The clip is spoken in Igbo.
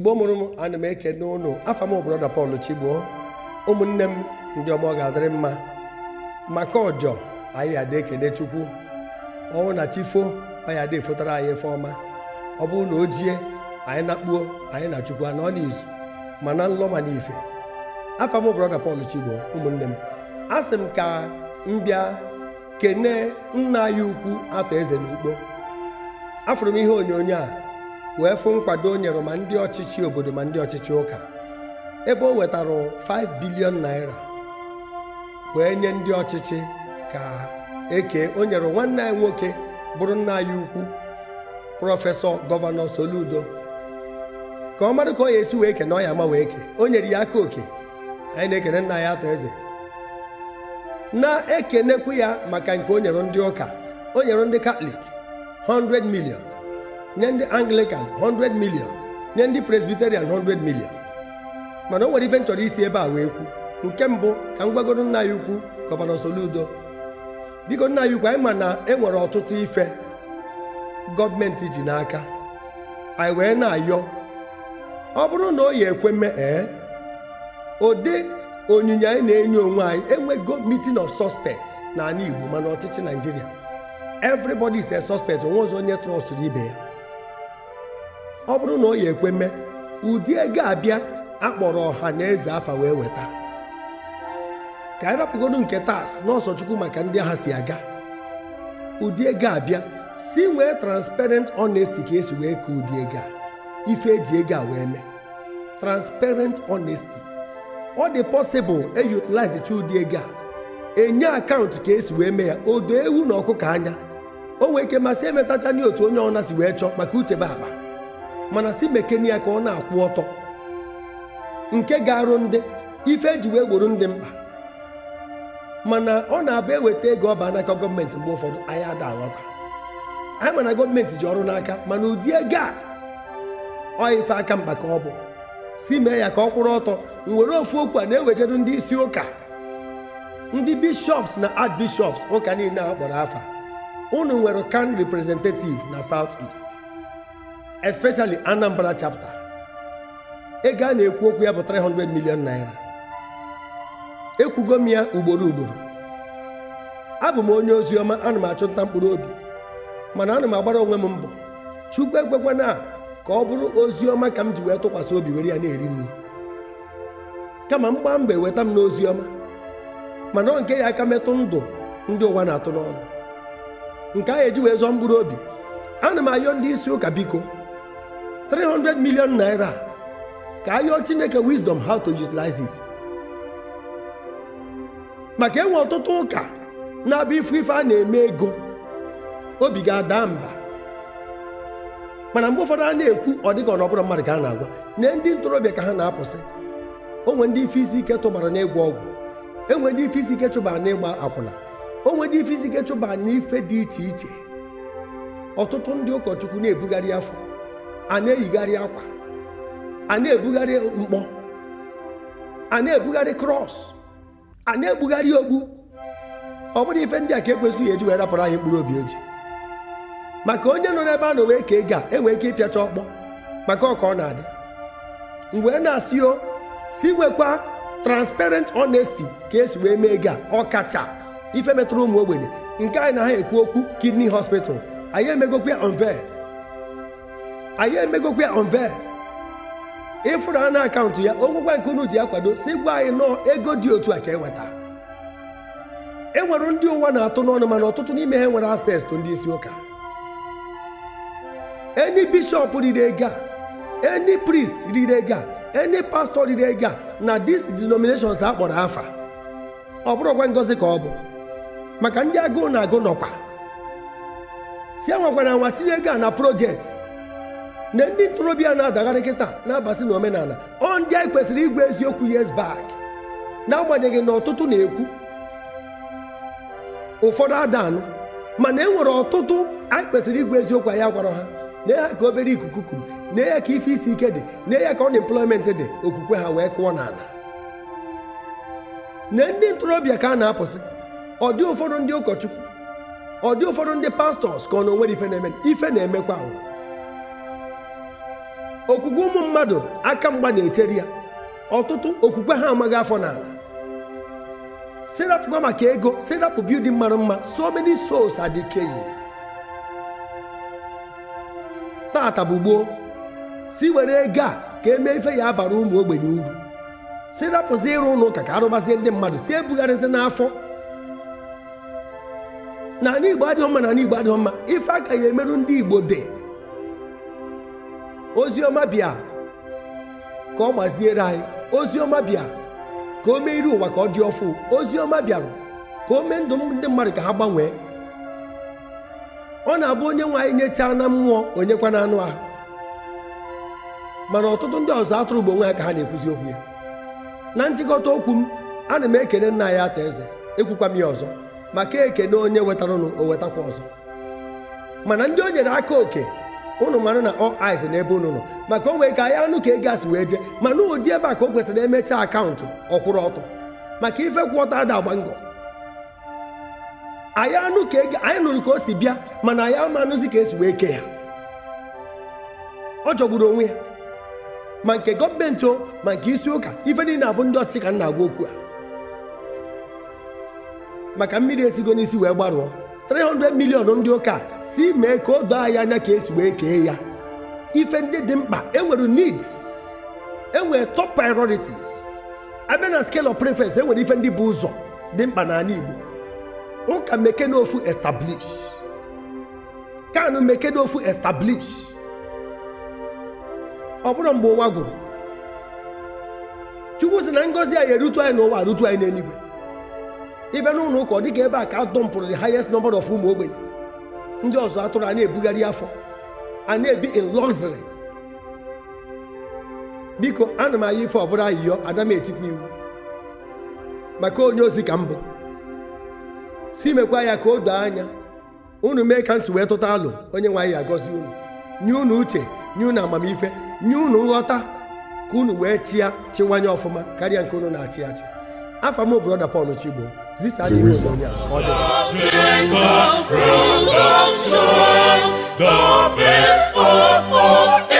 mgbe mụrụ m ana m ekene ụnụ afa m broda Paul Chigbo ụmụnne m ndị ọ ga-adịrị mma maka ọjọ anyị adị ekele Chukwu ọnwụ na chifo anyị adị fotara anyị efe ọma ọ bụrụ na o jie anyị nakpuo anyị na Chukwu anọ n'izu mana nlọ ma n'ife afa m broda Paul Chigbo ụmụnne m a sị m ka m bịa kene nna anyị ukwu atọ eze n'ugbo afụrụ m ihe onyonyo a wee fụ nkwado o nyere ma ndị ọchịchị obodo ma ndị ọchịchị ụka ebe o wetara 5 bilion naira wee nye ndị ọchịchị ka eke o nyere nwanne anyị nwoke bụrụ nna anyị ukwu prọfesọ gọvanọ Soludo ka ọ marụ ka ọ ya esi wee ke na ọ ya ama wee ke o nyere ya aka oke anyị na-ekene nna ya atọ eze na-ekenekwu ya maka nke o nyere ndị ụka o nyere ndị katọlik 100 million nye ndị anglican 100 million nye ndị presbiterian 100 million mana o nwere ife nchọrọ chọrọ isi ebe a wee kwu nke mbụ ka m gwagoro nna ya ukwu gọvanọ Soludo biko nna ya ukwu anyị ma na e nwere ọtụtụ ife gọọmenti ji n'aka anyị wee na-ayọ ọ bụrụ na o yi ekwe mee ee ụdị onyinye anyị na-enye onwe anyị enwego meeting of na n'ala Igbo mana ọchịchị Naijiria everybody is a suspect onwe ọzọ onye trọstụrụ ibe ya ọ bụrụ na ọ ya ekwe mee ụdị ego abịa akpọrọ ọha na eze afa wee weta ka anyị rapụgodu nke tas n'ọsọchukwu maka ndị agha si aga ụdị ego abịa si nwee transparent honesty ka esi wee ka ụdị ego a ife eji ego a wee mee transparent honesty ọ dị possible eyutilize chi ụdị ego a enye akaụntụ ka esi wee mee ya odo ewu na ọkụkọ anya o nwee ike masị emetacha nye otu onye ọna si wee chọọ maka uche be akpa mana si bekee ya ka ọ na-akwụ ọtọ nke ga-arụ ndị ife eji wee gboro ndị mkpa mana ọ na-abụ eweta ego ọba n'aka gọọmenti mgbe ụfọdụ anyị ada aghọta anyị mana gọọmenti ji ọrụ n'aka mana ụdị ego a ọ ife aka mkpa ka ọ bụ si mee ya ka ọ kwụrụ ọtọ nwere ofu okwu a na-ewejeru ndị isi ụka ndị bishọps na bishọps ụka niile a kpọrọ afa unu nwere kan representative na south east especially Anambra chapter ego a na-ekwu okwu ya bụ 300 million naira ekwugo m ya ugboro ugboro abụ m onye ozi ọma ana m achụ nta mkpụrụ obi mana ana m agbara onwe m mbọ chukwu ekwekwana ka ọ bụrụ ozi ọma ka m ji wee tụkwasị obi were ya na-eri nri kama m gbaa mgbe weta m n'ozi ọma mana ọ nke ya aka metụ ndụ ndị ụwa na-atụ n'ọnụ nke a eji wee zọọ mkpụrụ obi ana m ayọ ndị isi ụka biko 300 million naira ka ayọ chineke wisdom how to utilize it maka enwe ọtụtụ ụka na-abịa ifu ife a na-eme ego obi ga-ada mba mana mgbe ụfọdụ a na-ekwu ọ dịka nọbụrụ mmadụ ka a na-agwa na ndị ntorobịa ka ha na-apụsị onwe ndị ife isi ike tụbara n'ịgwọ ọgwụ enwe ndị ife isi ike chụbara n'ịgba akwụna onwe ndị ife isi ike chụbara n'ife dị iche iche ọtụtụ ndị ụkọchukwu na-ebugharị afọ a na-eyigharị akwa a na-ebugharị mkpọ a na-ebugharị kros, a na-ebugharị ogbu ọ bụrụ ife ndị a ka ekwesịghị eji wee rapụrụ anyị mkpụrụ obi eji maka onye nọ n'ebe a na owee ka ego a enwee ike ịpịacha ọkpọ maka ọka ọ na-adị mgbe na-asị o si nwekwa transparent honesty ka esi wee mee ego a ọkacha ife metụrụ ụmụ ogbenye nke anyị na ha ekwu okwu kidney hospital anyị emegokwa unveil anyị emegokwa ya onve ịfụrụ anụ akaụntụ ya onwekwa nke unu ji ya si gwa anyị nọọ ego dị otu a ka eweta e nwere ndị ụwa na-atụ n'ọnụ mana ọtụtụ n'ime ha nwere access to ndị isi ụka enyi bishọp riri ego a prist priest riri ego a pastọ pastor riri ego na dis denominations a kpọrọ afa ọ bụrụkwa ngozi ka ọ bụ maka ndị agụụ na agụ nọkwa si enwekwana nwa tinye ego na projekti. na ndị ntorobịa na-adagharị kịta na-abasị na omenala ọ ndị anyị kwesịrị igwe eziokwu yes na-agbanyeghị na ọtụtụ na-ekwu ụfọdụ adanụ mana e nwere ọtụtụ anyị kwesịrị igwe eziokwu anyị agwara ha na ya ka obere ikuku kuru na ya ka ife isi ike dị na ya ka unemployment dị okwukwe ha wee kụọ n'ala na ndị ntorobịa ka a na-apụsị ọ dị ụfọdụ ndị ụkọchukwu ọ dị ụfọdụ ndị pastọs ka ọ na onwere ife na-eme ife na-emekwa okwukwe ụmụ mmadụ aka mgba na-eteri ya ọtụtụ okwukwe ha amaghị afọ n'ala serapụkwa maka ego serapụ bildin mara mma so many souls adịkeghị tata bụ gboo si were ego a ka emee ife ya abara ụmụ ogbenye uru si ịrụ ụlọ ụka ka arụbazie ndị mmadụ si ebugharịzi n'afọ na ala igbo adịghị mma na igbo adịghị mma ife agaghị emerụ ndị igbo dị oziọma bịa ka ọ gbaziere anyị ọma bịa ka o mee iri ụwa ka ọ dị ọfụ oziọma bịara ka o mee ndụ ndị mmadụ ka ha gbanwee ọ na-abụ onye nwe anyị nyechaa na mmụọ onyekwa na anụ ahụ mana ọtụtụ ndị ọzọ atụrụ ugbo onwe ha ka ha na-ekwuzi okwu ya na nchịkọta okwu m ana m ekene nna anyị ata eze ekwukwa m ya ọzọ maka ekene onye wetaranụ o wetakwa ọzọ mana ndị o nyere aka oke unu mara na all eyes n'ebe unu nọ maka o nwee ka ya anụ ka ego asị wee jee mana ụdị ebe a ka o kwesịrị emechaa akaụntụ ọkwụrụ ọtọ maka ife kwụọta ada agba ngọ anyị anụ ka ego anyị nụrụ ka o si bịa mana anyị ama anụzi ka esi wee ke ya ọ jọgburu onwe ya ma nke gọọmenti o ma nke isi ụka ife niile abụ ndị ọchịchị ka m na-agwa okwu a maka mmiri esigo n'isi wee gbarụọ 300 million ndị ụka si mee ka o doo anyị anya ka esi wee kee ya ife ndị dị mkpa enwere needs enwere top priorities abịa na scale of preference enwere ife ndị bụ ụzọ dị mkpa n'ala Igbo ụka mekene ofu establish kanụ mekene ofu establish ọ bụrụ mgbe ụwa gwụrụ chukwu sị na ngọzi anyị erutu anyị n'ụwa rutu anyị n'eluigwe ịbịa n'ụlọ ụka ọ dịka ebe a ka a dọmpụrụ the highest number of ụmụ ogbenye ndị ọzọ atụrụ a na-ebugharị afọ a na-ebi in luxury biko ana m anya ife ọbụla ayịyọ adam etikwa iwu maka onye ozi ka m bụ si mekwa ya ka o doo anya unu mee ka nsi wee tụta alụ onye nwe anyị agọzi unu nye unu uche nye unu amamife nye unu nghọta ka unu wee chịa chiwanye ọfụma karịa nke unu na-achị achị afa m bụ brọda Pọl Chigbo zisadi odonia ọdẹ. Jacob, rock of the best of all.